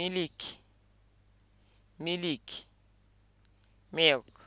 milik milik milk